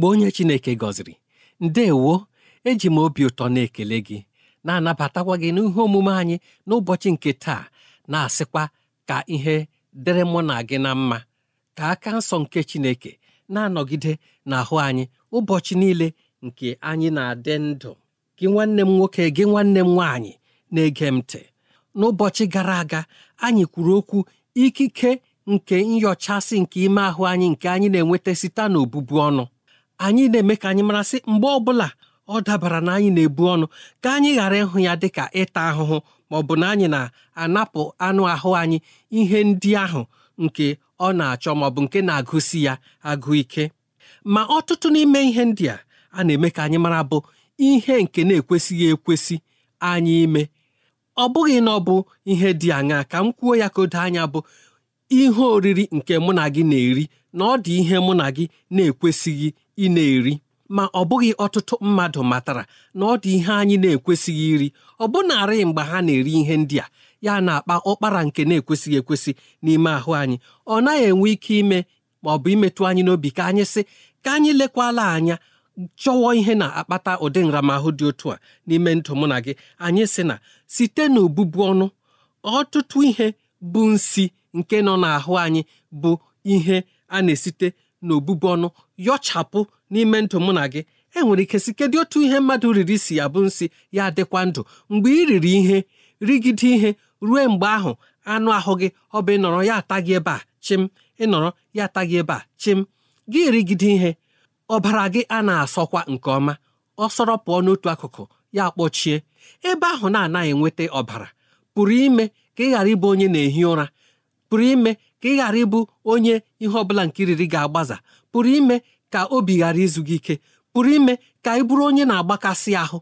ezigbo onye Chineke gọziri ndewo eji m obi ụtọ na-ekele gị na-anabatakwa gị n'ihe omume anyị n'ụbọchị nke taa na-asịkwa ka ihe dịrị mụ na gị na mma ka aka nsọ nke Chineke na-anọgide n'ahụ anyị ụbọchị niile nke anyị na-adị ndụ gị nwanne m nwoke gị nwanne m nwaanyị na-ege m ntị n'ụbọchị gara aga anyị kwuru okwu ikike nke nyochasị nke ime ahụ anyị nke anyị na-enweta site n'obụbu ọnụ anyị na-eme ka anyị marasị mgbe ọbụla ọ dabara na anyị na-ebu ọnụ ka anyị ghara ịhụ ya dị ka ịta ahụhụ ma ọ bụ na anyị na-anapụ anụ ahụ anyị ihe ndị ahụ nke ọ na-achọ ma ọ bụ nke na-agụsi ya agụ ike ma ọtụtụ n'ime ihe ndị a a na-eme ka anyị mara bụ ihe nke na-ekwesịghị ekwesị anyị ime ọ bụghị na ọ bụ ihe dị aṅaa ka m kwuo ya ka o anya bụ ihe oriri nke mụ na gị na-eri na ọ dị ihe mụ na gị na-ekwesịghị ị na-eri ma ọ bụghị ọtụtụ mmadụ matara na ọ dị ihe anyị na-ekwesịghị iri ọ bụ mgbe ha na-eri ihe ndị a ya na-akpa ụkpara nke na-ekwesịghị ekwesị n'ime ahụ anyị ọ naghị enwe ike ime ma ọ bụ imetụ anyị n'obi ka anyị sị ka anyị lekwala anya chọwọ ihe na-akpata ụdị nramahụ dị otu a n'ime ndụ mụ na gị anyị sị na site n'obubu ọnụ ọtụtụ ihe bụ nsi nke nọ n'ahụ anyị bụ ihe a na-esite na obụbu ọnụ yọchapụ n'ime ndụ mụ na gị enwere ike si kedu otu ihe mmadụ riri si ya bụ nsị ya adịkwa ndụ mgbe ị riri ihe rigide ihe ruo mgbe ahụ anụ ahụ gị ọ bụ ịnọrọ ya ata ebe a chim ịnọrọ ya ata gị ebe a chim gị rigide ihe ọbara gị a na-asọkwa nke ọma ọ sọrọ pụọ n'otu akụkụ ya kpọchie ebe ahụ na-anaghị enweta ọbara pụrụ ka ị ghara ịbụ onye na-ehi ụra pụrụ ime ka ị ghara ịbụ onye ihe ọbụla nke riri ga-agbaza pụrụ ime ka obi ghara izu gị ike pụrụ ime ka ị bụrụ onye na-agbakasị ahụ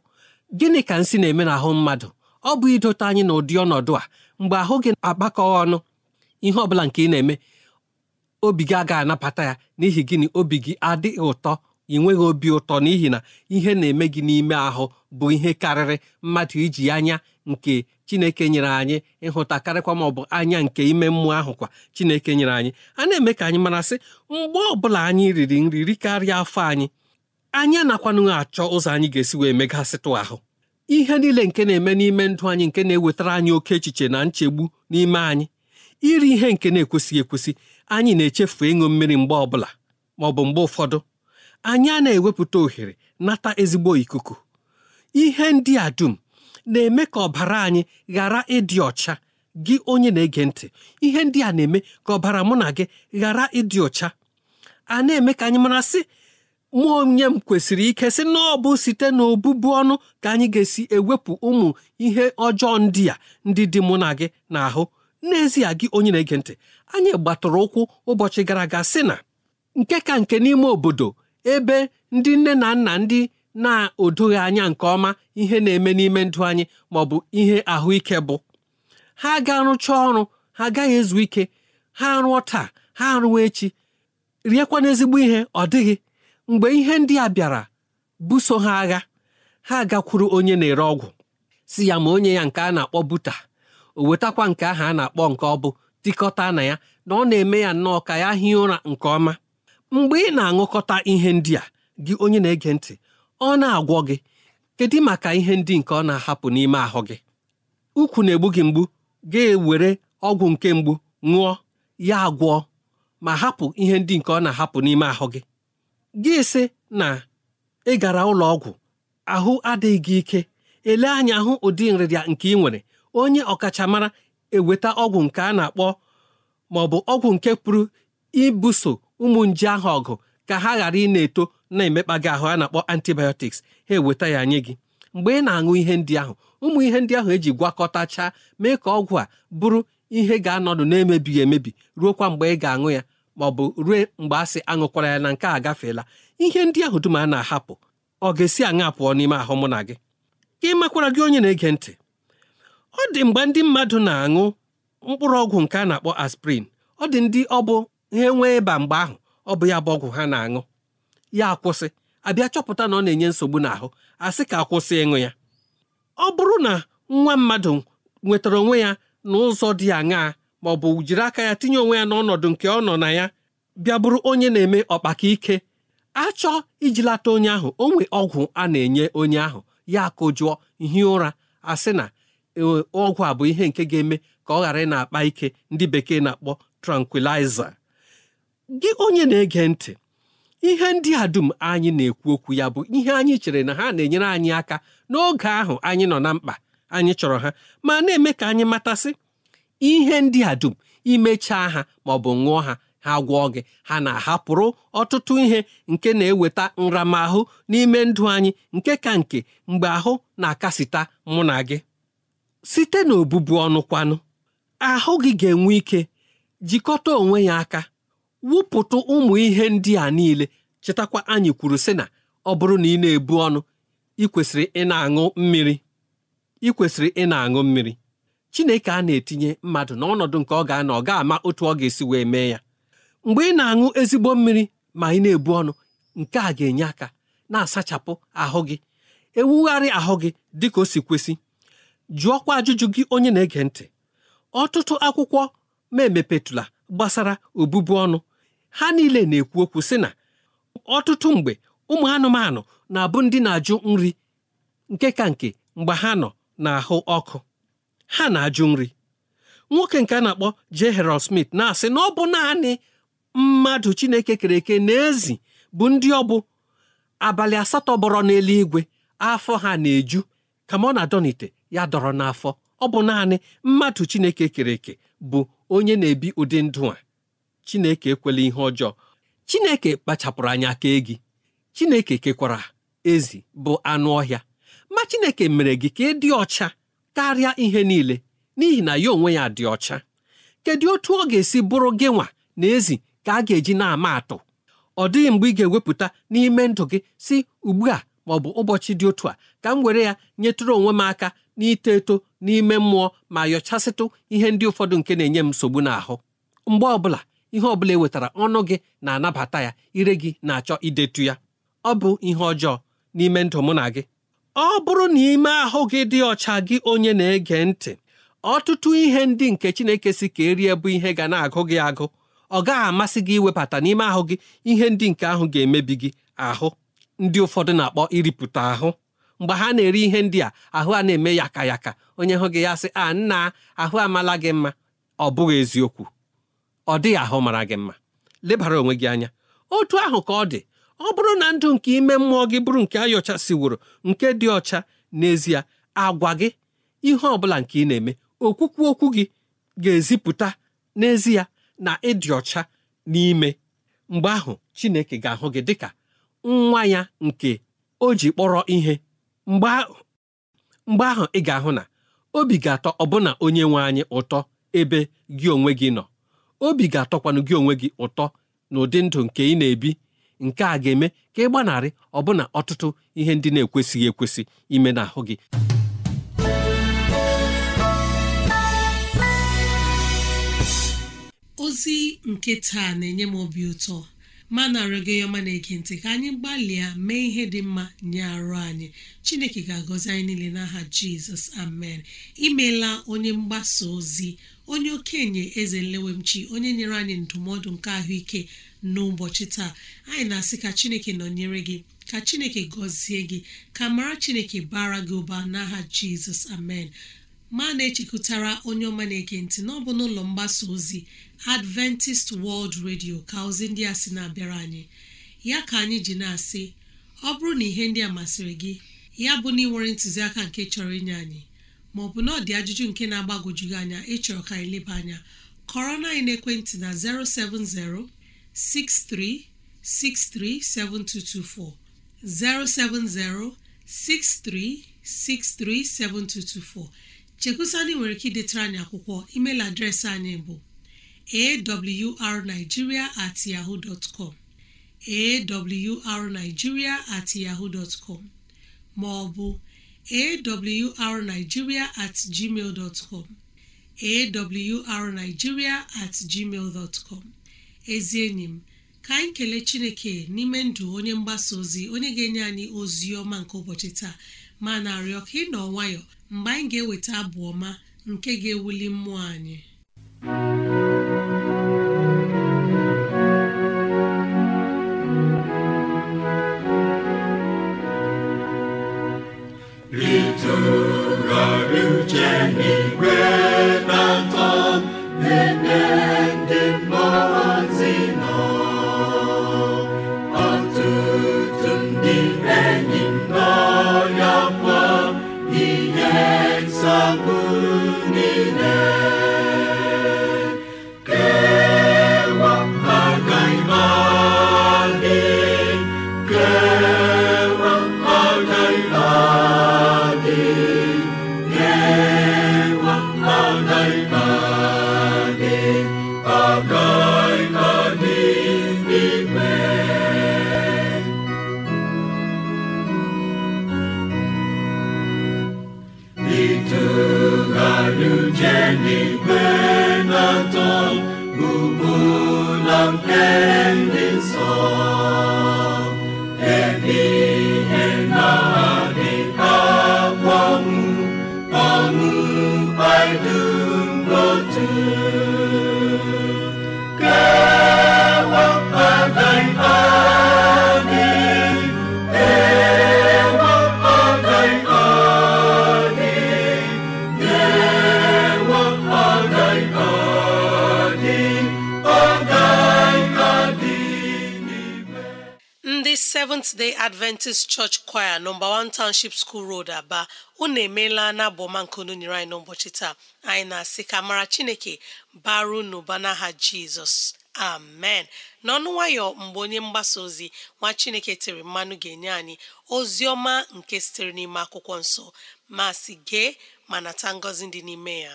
gịnị ka nsị na-eme ahụ mmadụ ọ bụ idote anyị n'ụdị ọnọdụ a mgbe ahụ gị agbakọ ọnụ ihe ọbụla nke ị na-eme obi gị agaghị anabata ya n'ihi gịnị obi gị adịghị ụtọ ị nweghị obi ụtọ n'ihi na ihe na-eme gị n'ime ahụ bụ ihe karịrị mmadụ iji anya nke chineke nyere anyị ịhụta karịkwa ma ọ bụ anya nke ime mmụọ ahụ kwa chineke nyere anyị a na-eme ka anyị mara sị mgbe ọbụla anyị riri nri rikarịa afọ anyị anyị anakwanụghị achọ ụzọ anyị ga-esi wee megasịtụ ahụ ihe niile nke na-eme n'ime ndụ anyị nke na-ewetara anyị oke echiche na nchegbu n'ime anyị iri ihe nke na-ekwesịghị ekwesị anyị na-echefu ịṅụ mmiri mgbe ọbụla ma ọ bụ mgbe ụfọdụ anyị a na-ewepụta ohere nata ezigbo ikuku ihe ndị a dum na-eme ka ọbara anyị ghara ịdị ọcha gị onye na-ege ntị ihe ndị a na-eme ka ọbara mụ na gị ghara ịdị ọcha a na-eme ka anyị mara sị mụ onye m kwesịrị ike sị na ọ bụ site n'obụbu ọnụ ka anyị ga-esi ewepụ ụmụ ihe ọjọọ ndị a ndị dị mụ na gị n'ahụ n'ezie gị onye na-ege ntị anyị gbatụrụ ụkwụ ụbọchị gara aga sị na nke ka nke n'ime obodo ebe ndị nne na nna ndị na-odoghị anya nke ọma ihe na-eme n'ime ndụ anyị ma ọ bụ ihe ahụike bụ ha ga arụcha ọrụ ha agaghị ezu ike ha rụọ taa ha arụwa echi riekwa n'ezigbo ihe ọ dịghị mgbe ihe ndị a bịara buso ha agha ha gakwuru onye na-ere ọgwụ si ya ma onye ya nke a na-akpọ buta o wetakwa nke ahụ a na-akpọ nke ọ bụ tikọta na ya na ọ na-eme ya nnọọ ka ya hie ụra nke ọma mgbe ị na-aṅụkọta ihe ndị a gị onye na-ege ntị ọ na-agwọ gị kedu maka ihe ndị nke ọ na-ahapụ n'ime ahụ gị ukwu na-egbu gị mgbu ga-ewere ọgwụ nke mgbu ṅụọ ya agwọ ma hapụ ihe ndị nke ọ na-ahapụ n'ime ahụ gị gị sị na ị gara ụlọ ọgwụ ahụ adịghị gị ike ele anya hụ ụdị nrịrịa nke ị nwere onye ọkachamara eweta ọgwụ nke a na-akpọ ma ọ bụ ọgwụ nke pụrụ ibuso ụmụ nje ahụ ọgụ ka ha ghara ị na-eto na-emekpa gị ahụ a na-akpọ antibiotics ha eweta ya nye gị mgbe ị na-aṅụ ihe ndị ahụ ụmụ ihe ndị ahụ eji gwakọtachaa mee ka ọgwụ a bụrụ ihe ga-anọdụ na-emebighị emebi ruo kwa mgbe ị ga-aṅụ ya ma ọ bụ ruo mgbe a sị aṅụkwara ya na nke a gafeela ihe ndị ahụ dum a na-ahapụ ọ ga-esi aṅa pụọ n'ime ahụ mụ na gị ka ị makwara gị onye na-ege ntị ọ dị mgbe ndị mmadụ na-aṅụ mkpụrụ ọgwụ nke a na-akpọ aspirin ọ dị ndị ọ bụ ha nwee ịba mgbe ahụ ọ bụ ya bụ ọgwụ ha na-aṅụ ya akwụsị abịa chọpụta na ọ na-enye nsogbu n'ahụ asị ka akwụsị ịṅụ ya ọ bụrụ na nwa mmadụ nwetara onwe ya n'ụzọ dị aṅaa ma ọ bụ jiri aka ya tinye onwe ya n'ọnọdụ nke ọ nọ na ya bịa bụrụ onye na-eme ọkpaka ike achọ ijilata onye ahụ o nwe ọgwụ a na-enye onye ahụ ya akụjụọ hie ụra asị na e, ọgwụ a bụ ihe nke ga-eme ka ọ ghara ị na-akpa ike ndị bekee na-akpọ trankwilaiza gị onye na-ege ntị ihe ndị a dum anyị na-ekwu okwu ya bụ ihe anyị chere na ha na-enyere anyị aka n'oge ahụ anyị nọ na mkpa anyị chọrọ ha ma na-eme ka anyị matasị ihe ndị a dum imechaa ha ma ọ bụ ṅụọ ha ha gwọọ gị ha na-ahapụrụ ọtụtụ ihe nke na-eweta nramahụ n'ime ndụ anyị nke ka nke mgbe ahụ na-akasịta mụ na gị site n'obubu ọnụ kwanụ ahụ gị ga-enwe ike jikọta onwe ya aka wụpụtụ ụmụ ihe ndị a niile chetakwa anyị kwuru sị na ọ bụrụ na ị na-ebu ọnụ ị kwesịrị ị na-aṅụ mmiri ị kwesịrị ị na-aṅụ mmiri Chineke a na-etinye mmadụ n'ọnọdụ nke ọ ga-anọ ọ ga-ama otu ọ ga-esi wee mee ya mgbe ị na-aṅụ ezigbo mmiri ma ị na-ebu ọnụ nke a ga-enye aka na-asachapụ ahụ gị ewugharị ahụ gị dị ka o si kwesị jụọkwa ajụjụ gị onye na-ege ntị ọtụtụ akwụkwọ ma emepetụla gbasara obụbu ọnụ ha niile na-ekwu okwu sị na ọtụtụ mgbe ụmụ anụmanụ na-abụ ndị na-ajụ nri nke ka nke mgbe ha nọ n'ahụ ọkụ ha na-ajụ nri nwoke nke a na-akpọ J. Harold Smith na-asị na ọ bụ naanị mmadụ Chineke kere eke na ezi bụ ndị ọ bụ abalị asatọ bọrọ n'eluigwe afọ ha na-eju kama ọ na-adọnite ya dọrọ n'afọ ọ bụ naanị mmadụ Chineke kere eke bụ onye na-ebi ụdị ndụ a Chineke ekwela ihe ọjọọ Chineke kpachapụrụ anya kee gị Chineke kekwara ezi bụ anụ ọhịa ma Chineke mere gị ka ị dị ọcha karịa ihe niile n'ihi na ya onwe ya dị ọcha kedu otu ọ ga-esi bụrụ gị nwa na ezi ka a ga-eji na-ama atụ ọ dịghị mgbe ị ga-ewepụta n'ime ndụ gị si ugbu a ma ọ bụ ụbọchị dị otu a ka m were ya nyetụrụ onwe m aka n'ito eto n'ime mmụọ ma yọchasịtụ ihe ndị ụfọdụ nke na-enye m nsogbu n'ahụ mgbe ọbụla ihe ọ bụla e wetara ọnụ gị na-anabata ya ire gị na-achọ idetu ya ọ bụ ihe ọjọọ n'ime ndụ mụ na gị ọ bụrụ na ime ahụ gị dị ọcha gị onye na-ege ntị ọtụtụ ihe ndị nke Chineke si ka erie bụ ihe ga na-agụ gị agụ ọ gaghị amasị gị iwebata n'ime ahụ gị ihe ndị nke ahụ ga-emebi gị ahụ ndị ụfọdụ na-akpọ iripụta ahụ mgbe ha na-eri ihe ndị a ahụ a na-eme yaka yaka onye hụ gị ya sị a nna ahụ amala gị mma ọ bụghị eziokwu ọ dịghị ahụ mara gị mma lebara onwe gị anya otu ahụ ka ọ dị ọ bụrụ na ndụ nke ime mmụọ gị bụrụ nke siworo nke dị ọcha n'ezie agwa gị ihe ọ bụla nke ị na-eme okwukwu okwu gị ga-ezipụta n'ezie na ịdị ọcha n'ime mgbe ahụ Chineke ga-ahụ gị dịka nwa ya nke o ji kpọrọ ihe mgbe ahụ ị ga-ahụ na obi ga-atọ ọbụna onye nwe anyị ụtọ ebe gị onwe gị nọ obi ga-atọkwanụ gị onwe gị ụtọ na ụdị ndụ nke ị na-ebi nke a ga-eme ka ị gbanarị ọbụna ọtụtụ ihe ndị na-ekwesịghị ekwesị ime n'ahụ gị ozi nke taa na-enye m obi ụtọ ma na arịọ na-ege ka anyị gbalịa mee ihe dị mma nye arụ anyị chineke ga-agọzi anyị niile n'aha jizọs amen imela onye mgbasa ozi onye okenye eze nlewemchi onye nyere anyị ndụmọdụ nke ahụike n'ụbọchị taa anyị na-asị ka chineke nọnyere gị ka chineke gọzie gị ka mara chineke bara gị ụba n'aha jizọs amen ma na-echekwutara onye ọma na-ege na ọ bụ n'ụlọ mgbasa ozi adventist world radio ka ozi ndị a sị na-abịara anyị ya ka anyị ji na-asị ọ bụrụ na ihe ndị a masịrị gị ya bụ na ị nwere ntụziaka nke chọrọ inye anyị Ma maọbụ na ọ dị ajụjụ nke na-agbagwoju gị anya ịchọrọ ka anyị leba anya kọrọ na ekwentị na 07063637224 0706363724 chekusani nwere ike idetara anyị akwụkwọ emeil adreesị anyị bụ arigiria at yahoo dot com at yaho dot maọbụ awrnigeria at gmail dot com at gmail dot com ezi enyi m ka anyị kelee chineke n'ime ndụ onye mgbasa ozi onye ga-enye anyị ozi ọma nke ụbọchị taa ma na-arịọ ka ị nọ nwayọ mgbe anyị ga-eweta abụ ọma nke ga-ewuli mmụọ anyị ndị Seventh Day Adventist Church Choir nọmba 1 Township School Road Aba unu emeela na unu nyere anyị n'ụbọchị taa anyị na-asị ka mara Chineke baru n'ụba n'aha Jizọs amen n'ọnụ nwayọ mgbe onye mgbasa ozi nwa Chineke tere mmanụ ga-enye anyị ozi ọma nke sitere n'ime akwụkwọ nsọ ma si gee ma nata ngọzi dị n'ime ya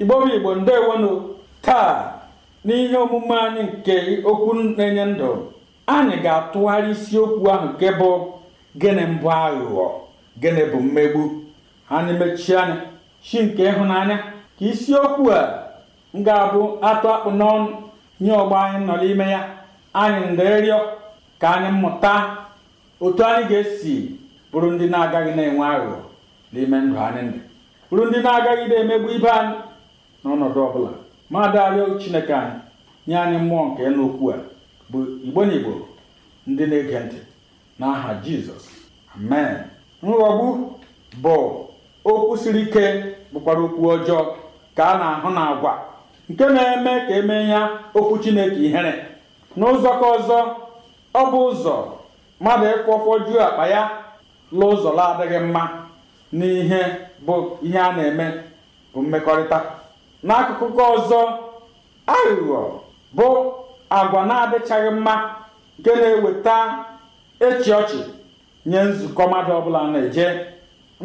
igbo bụ igbo ndewonu taa n'ihe omume anyị nke okwu na-enye ndụ anyị ga-atụgharị isiokwu ahụ nke bụ gịnị mbụ aghụghọ gịnị bụ mmegbu anyị mechie anya chi nke ịhụnanya ka isiokwu a ga-abụ atụ akpụ n'ọnụ nye ọgbọ anyị nọ n'ime ya anyị nderịọ ka anyị mụta otu anyị ga-esi bụrụ ndị na-agaghị na-enwe aghụghọ n'ime ndụ anyị ndụ bụrụ ndị na-agaghị na-emegbu ibe anyị n'ọnọdụ ọbụla ma daalụ chineke anyị nye anyị mmụọ nke nokwu a bụ igbo na igbo ndị na-ege ntị n'aha jizọs amen nghọgbu bụ okwu siri ike bụkwara okwu ọjọọ ka a na-ahụ na agwa nke na-eme ka emee ya okwu chineke ihere n'ụzọ ka ọzọ ọ bụ ụzọ mmadụ ịfụ ọfọjuo akpa ya la ụzọ adịghị mma n'ihe bụ ihe a na-eme bụ mmekọrịta n'akụkụ nke ọzọ aghụghọ bụ agwa na-adịchaghị mma nke na-eweta echi ọchị nye nzukọ mmadụ ọbụla na-eje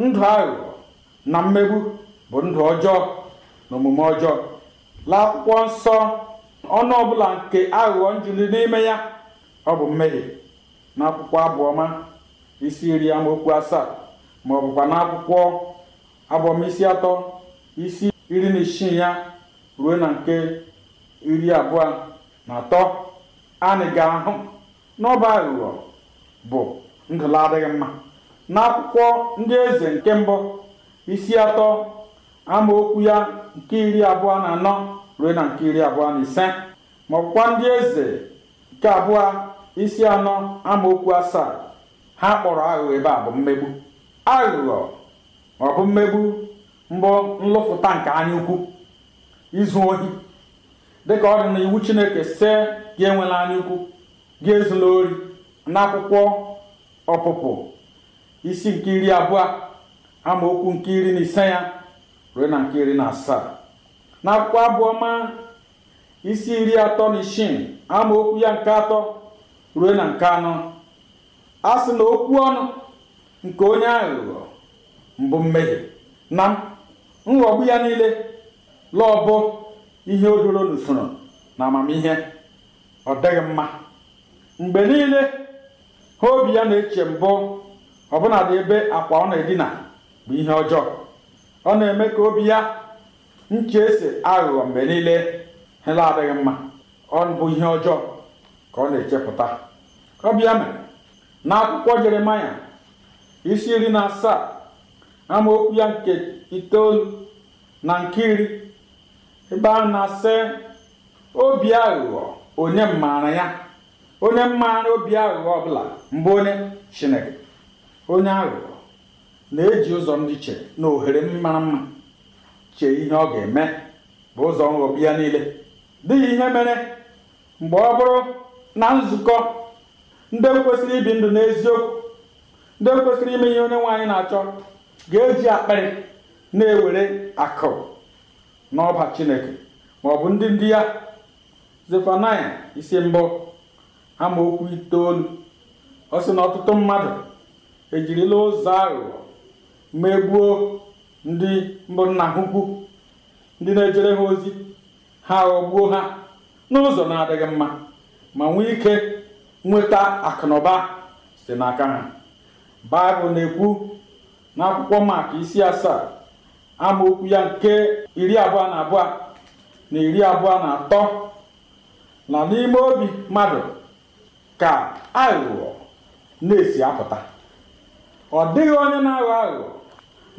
ndụ aghụghọ na mmegbu bụ ndụ ọjọọ na omume ọjọọ akwụkwọ nsọ ọnụ ọbụla nke aghụghọ njiri n'ime ya ọ bụ mmehie n'akwụkwọ abụọma isi iri amaokwu asaa ma ọ bụkwa n'akwụkwọ abụọma isi atọ isi iri na isii ya ruo na nke iri abụọ na atọ anyị ga-ahụ n'ọba aghụghọ bụ ndụla adịghị mma n'akwụkwọ ndị eze nke mbụ isi atọ amaokwu ya nke iri abụọ na anọ ruo na nke iri abụọ na ise ma ọkwa ndị eze nke abụọ isi anọ amaokwu asaa ha kpọrọ aghụghọ ebe a bụ mmegbu aghụghọ ọ bụ mmegbu mbụ nlụfụta nke anya ukwu izu ohi dịka ọ dị na iwu chineke se gị enwela anya ukwu gị ezula ori n'akwụkwọ ọpụpụ isi nke iri abụọ amaokwu nke iri na ise ya ruo na nke iri na asaa n'akwụkwọ abụọ ma isi iri atọ na isii ama okwu ya nke atọ ruo na nke anọ a sị na okwu ọnụ nke onye aghụghọ mbụ mmehie na nghọgbu ya niile bụ ihe odoro n'usoro na amamihe ọ dịghị mma mgbe niile ha obi ya na-eche mbụ ọbụna ebe akwa ọ na-edina bụ ihe ọjọọ ọ na-eme ka obi ya nche ese aghụghọ mgbe niile hela adịghị mma ọ bụ ihe ọjọọ ka ọ na-echepụta ọbịa mere na akwụkwọ isi iri na asaa amaokwu ya nke itoolu na nke iri ebe a na-asị obi aghụghọ onye mmaara ya onye mmaara obi aghụghọ ọbụla mbụ onye chineke onye aghụghọ na-eji ụzọ ndị che na ohere mara mma chee ihe ọ ga-eme bụ ụzọ nghọbi ya niile dịghị ihe mere mgbe ọ bụrụ na nzukọ ndị kwesịrị ibi ndụ n'eziokwu ndị kwesịrị ime ihe onye nwaanyị na-achọ ga-eji akpịrị na-ewere akụ n'ọba chineke ma ọ bụ ndị ndị ya zefanaya isi mbụ okwu itoolu ọ sị na ọtụtụ mmadụ ejirila ụzọ aghụghọ megbuo ndị mbụ nna ha ndị na-ejere ha ozi ha ghọgbuo ha n'ụzọ na-adịghị mma ma nwee ike nweta akụnụba site n'aka ha baịbụl na-ekwu n'akwụkwọ maka isi asaa amaokwu ya nke iri abụọ na abụọ na iri abụọ na atọ na n'ime obi mmadụ ka aghụghọ na-esi apụta ọ dịghị onye na-aghọ aghụghọ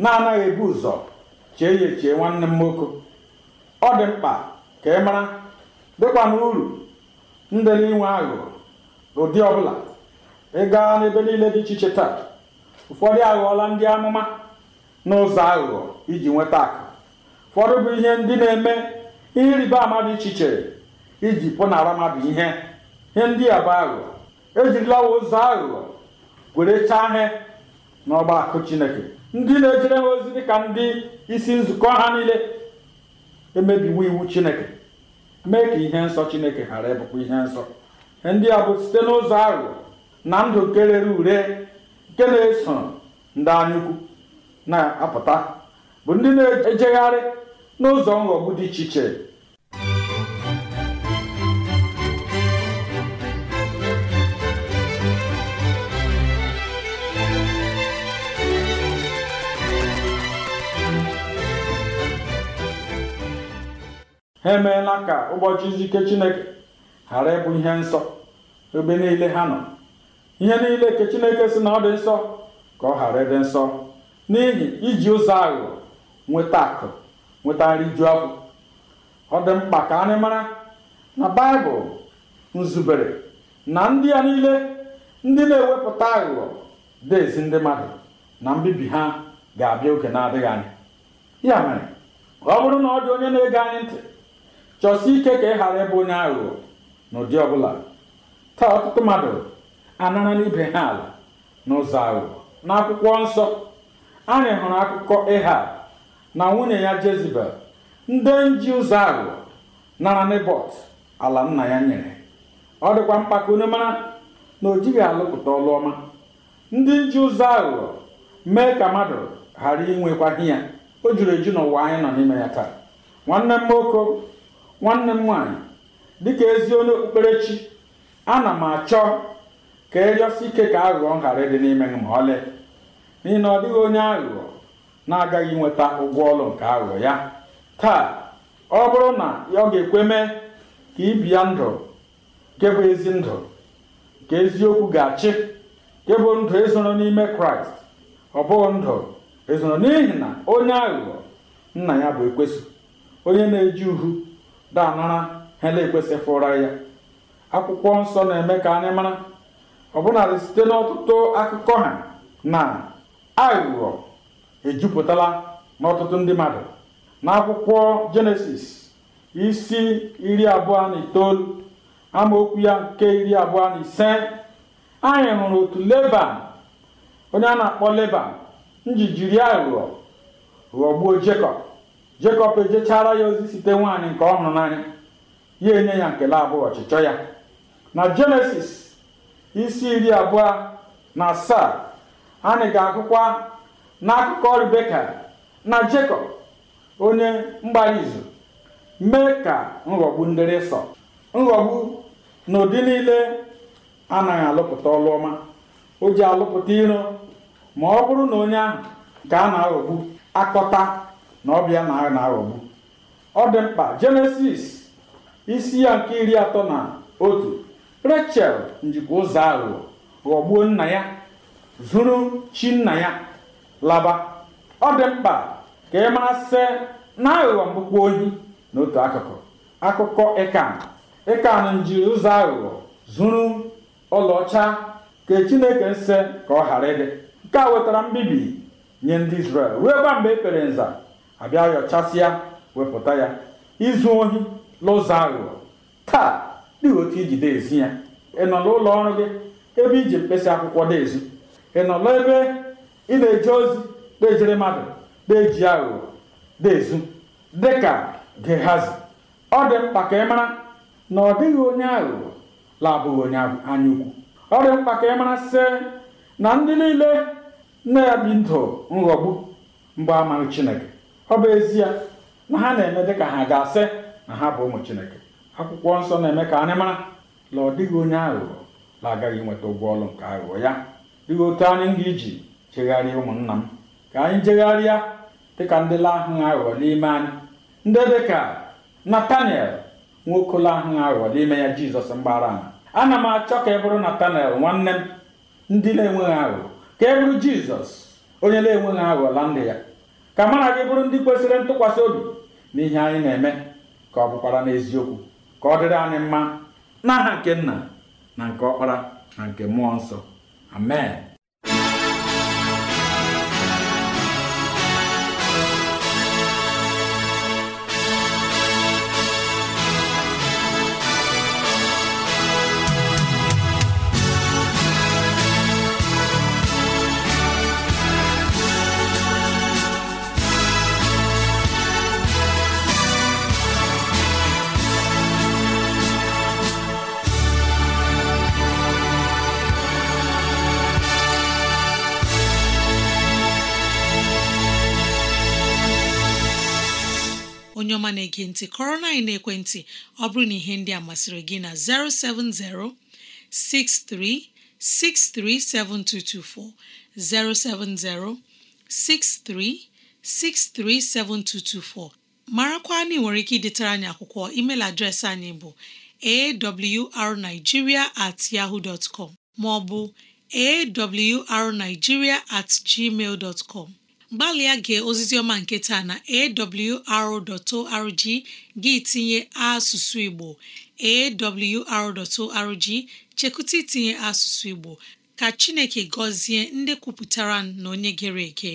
na-anaghị ebu ụzọ chee ya echee nwanne m nwoke ọ dị mkpa ka ị mara dịkwa n'uru ndị ndị inwe aghụghọ ụdị ọbụla ị gaa n'ebe niile dị iche iche taa ụfọdụ aghọọla ndị amụma n'ụzọ aghụghọ iji nweta akụ ụfọdụ bụ ihe ndị na-eme ihe ịrịba ama dị iche iche iji pụnara mmadụ ihe ihe ndị a bụ aghụghọ ejirilawa ụzọ aghụghọ were chaa ihe n'ọgba akụ chineke ndị na-ejere ha ozi dịka ndị isi nzukọ ha niile emebiwo iwu chineke mee ka ihe nsọ chineke ghara ịbụkwa ihe nsọ ndị a bụ site n'ụzọ aghụghọ na ndụ nke rere ure nke na-eso ndị anyukwu na-apụta bụ ndị na-ejegharị n'ụzọ nghọgbu dị iche iche ha emeela ka ụbọchị izu chineke ghara ịbụ ihe nsọ ebe niile ha nọ ihe niile ka chineke si na ọ dị nsọ ka ọ ghara ịdị nsọ n'ihi iji ụzọ aghụghọ nweta akụ nweta nri ju afọ ọ dị mkpa ka anyị mara na baịbụl nzubere na ndị a niile ndị na-ewepụta aghụghọ dị ezi ndị mmadụ na mbibi ha ga-abịa oge na-adịghị anya ya mere ọ bụrụ na ọ dị onye na-ege anyị ntị chọsi ike ka ị ghara ịbụ onye aghụghọ n'ụdị ọbụla taa ọtụtụ mmadụ anara n'ibe ha ala n'ụzọ aghụghọ n'akwụkwọ nsọ anyị hụrụ akụkọ ịha na nwunye ya jezibel ndị nji ụzọ aghụghọ nara nebọt ala nna ya nyere ọ dịkwa mkpa ka onye mara na o jighị alụpụta ọlụọma ndị nji ụzọ aghụghọ mee ka mmadụ ghara inwekwaghị ya o juru eju n'ụwa anyị nọ n'ime ya taa nwanne m nwoke nwanne m nwaanyị dịka ezi onye okpukperechi ana m achọ ka ejosi ike ka aghụghọ ghara ịdị n'ime gị ma ọlị n'ihi na ọ dịghị onye aghụghọ na-agaghị nweta ụgwọ ọlụ nke aghụghọ ya taa ọ bụrụ na ọ ga-ekwe mee ka ibia ndụ nke bụ ezi ndụ nke eziokwu ga-achị nke bụ ndụ ezoro n'ime kraịst ọ bụghị ndụ ezoro n'ihi na onye aghụghọ nna ya bụ ekwesị onye na-eji uhu daanara ha na fụra ya akwụkwọ nsọ na-eme ka anyị mara ọbụnadị site n'ọtụtụ akụkọ ha na aghụghọ ejupụtala n'ọtụtụ ndị mmadụ n'akwụkwọ jenesis isi iri abụọ na itoolu amaokwu ya nke iri abụọ na ise anyị hụrụ otu leban onye a na-akpọ leban nji jiri aghụghọ ghọgbuo jekọb jekọb ejechara ya ozi site nwaanyị nke ọ hụrụ n'anya ya enye ya nkele abụọ ọchịchọ ya na jenesis isi iri abụọ na asaa anyị ga-agụkwa n'akụkọ Rebeka na Jekọb onye mgbara izu mee ka nghọgbu ndịrịsọ Sọ nghọgbu na ụdị niile anaghị alụpụta ọlụ ọma o ji alụpụta iro ma ọ bụrụ na onye ahụ ga a na-aghọgbu akọta na ọbịa na na-aghọgbu ọ dị mkpa Jenesis isi ya nke iri atọ na otu rachel njikwa ụzọ aghụghọ ghọgbuo nna ya zuru chi nna ya laba ọ dị mkpa ka ị masị na aghụghọ mgbukpọ ohi n'otu akụkụ akụkọ ịkan ịkan njiri ụzọ aghụghọ zuru ọlaọcha ka chineke se ka ọ ghara ịdị nke a wetara mbibi nye ndị israel ruo gwa mgbe e kpere nza abịa yọchasịa wepụta ya izu ohi n'ụzọ aghụghọ taa dị otu iji deezi ya ị nọ n'ụlọ ọrụ gị ebe iji mkpesa akwụkwọ deezi ị nọ n'ebe ị na eji ozi na mmadụ na-eji aghụghọ deezu dịka gehazi ọ dị mkpa ka ị mara na ọ dịghị onye aghụghọ labụghị onye ukwu ọ dị mkpa ka ị mara sị na ndị niile na bi ndụ nghọgbu mgbe amaghị chineke ọ bụ ezie na ha na-eme dịka ha ga-asị na ha bụ ụmụ chineke akwụkwọ nsọ na-eme ka anyị mara na ọ dịghị onye aghụghọ na-agaghị nweta ụgwọ ọrụ nke aghụghọ ya dịghị otu anyị ga iji jegharịa ụmụnna m ka anyị jegharịa dịka ndị lahụghị aghụghọ n'ime anyị ndị dịka nataniel nwoke lahụghị aghụghọ n'ime ya Jizọs mgbara ama ana m achọ ka e bụrụ Natanel nwanne m ndị na-enweghị aghụghọ ka e bụrụ Jizọs onye na-enweghị aghụghọ la ndị ya ka mara gị bụrụ ndị kwesịrị ntụkwasị obi ihe anyị na-eme ka ọ bụkwara n'eziokwu ka ọ dịrị anyị mma n'aha nke nna na nke ọkpara na nke mmụọ nsọ amen onye ọma na-ege ntị kọrọ na-ekwentị ọ bụrụ na ihe ndị a masịrị gị na 070 6363 7224 070 6363 7224 marakwa na ị nwere ike idetara anyị akwụkwọ email adreesị anyị bụ awrnigeria at yahoo dot com maọbụ awrnigeria at gmail dot com gbalịa gee ozizi ọma nke taa na awr.org gị tinye asụsụ Igbo awr.org chekụta itinye asụsụ Igbo ka Chineke gọzie ndị kwupụtara na onye gere ege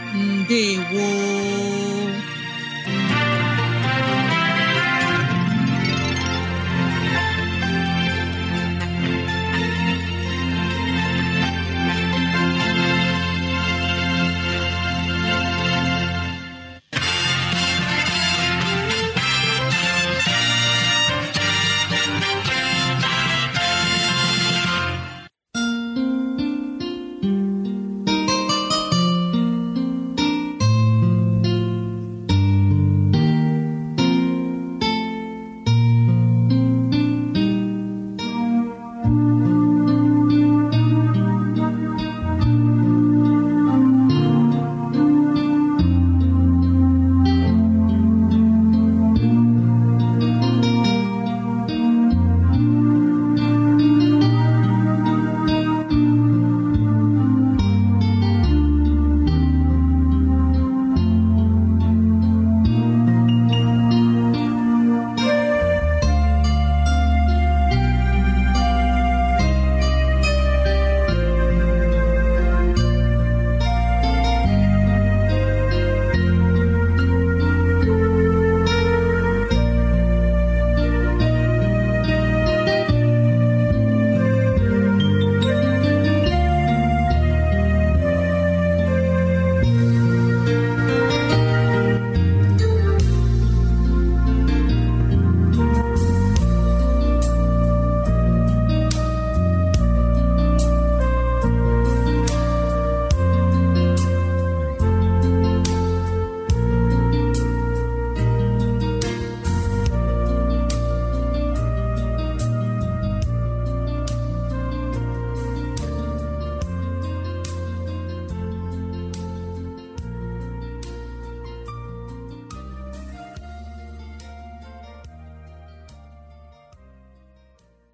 ndewo